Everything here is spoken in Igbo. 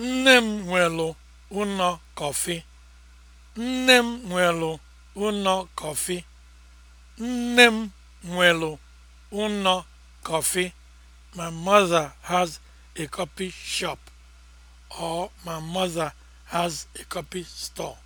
Nne m nwelu ụnọ kọfị. Nne m nwelu ụnọ kọfị. Nne m nwelu ụnọ kọfị. My mother has a coffee shop or my mother has a coffee store.